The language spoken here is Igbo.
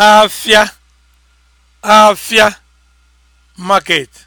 afia market